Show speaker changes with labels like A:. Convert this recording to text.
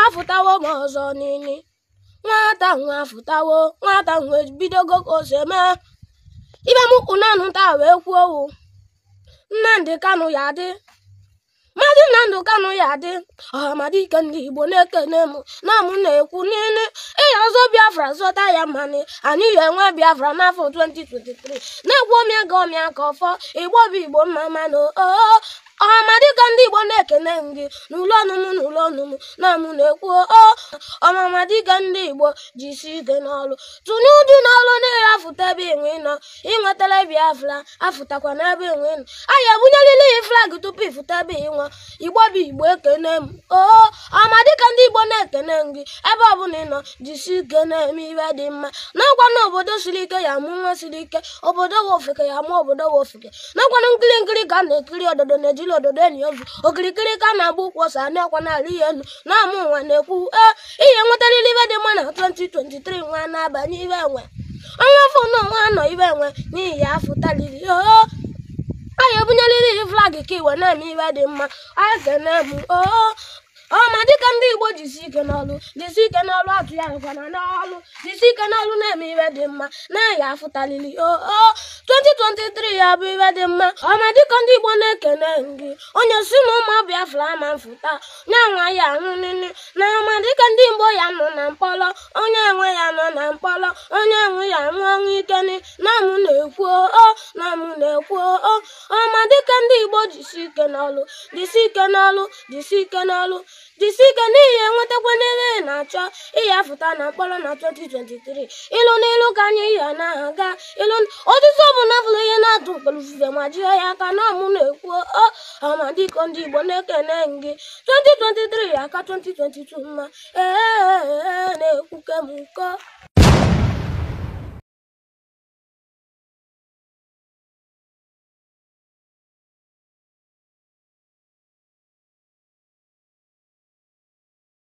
A: afụtawo m ọzọ n'ili nwata nwa afụtawo nwata nwa ebidogo ka ose mee ibe m nanụ taa wee kwuo owu Nnamdị Kanụ ya adị mmadụ Nnamdị Kanụ ya adị ọhamadike ndị Igbo na-ekene m na m na-ekwu n'ili ịya ọzọ Biafra zọta ya mmanụ anyị ya enwe Biafra n'afọ 2023 na-egwu omịa ga ọmịa ka ọfọ Igbo bụ Igbo mma mmanụ oh, oh, oh. ọmamadi ka ndị Igbo na-ekene ndị n'ụlọ ọnụnụ n'ụlọ ọnụnụ na anụ na-ekwu o ọmamadi ka ndị Igbo ji isi ike n'ọlụ tụnye uju n'ọlụ niile afụta ebe enwe nọ ịnwetara Biafra afụtakwa n'ebe enwe nọ anyị ebunyelile ya flag tupu ịfụta ebe ịnwa Igbo bụ Igbo ekene m o ọmamadi ka ndị Igbo ekene gị ebe ọbụla ị nọ jisi ike na-eme ihe dị mma nakwa na obodo siri ike ya amụ nwa siri ike obodo nwe ofeke ya amụ obodo nwe ofeke na nkiri nkiri ka a na-ekiri ododo na-ejiri ododo enyi ozu okirikiri ka a na-agba ụkwụ ọsa na-ekwa n'ala ihe elu na-amụ nwa na-ekwu e ihe nwetarịrị ibe dị mma na 2023 nwa na-abanye ibe nwe ọnwa afọ na ọnwa anọ ibe nwe n'ihi ya afọ tariri oo anyị ebunyerịrị flag ka iwe na-eme iwe dị mma a ga na-emu oo ọ ma dịka ndị Igbo jisi ike n'ọlụ jisi ike n'ọlụ atụ ya nkwana n'ọlụ jisi ike n'ọlụ na-eme iwe dị mma na-aya afụtalili o 2023 ya bụ iwe dị mma ọ ma dịka ndị Igbo na-ekene gị onye si na ụmụ ọbịa ama mfụta nyanwa ya ahụ nini na Ike ndị Igbo ya nọ na mkpọrọ, onye nwe ya nọ na mkpọrọ, onye nwe ya nwụọ ọnwụ ike nị na-ekwu oo nam na-ekwu oo ọma dịka ndị Igbo jisi ike n'ọlụ jisi ike n'ọlụ jisi ike n'ọlụ jisi ike n'ihi enwetakwa niile ị na-achọ ịyafụta na mkpọrọ na 2023 ilu n'ilu ka anyị ya na-aga ịlụ ọtụtụ ọ bụ ihe na-atụ mkpọrọ ma jiri ya aka nam na-ekwu oo ama di kondi bone kene ngi 2023 aka 2022 ma e ne kuke muko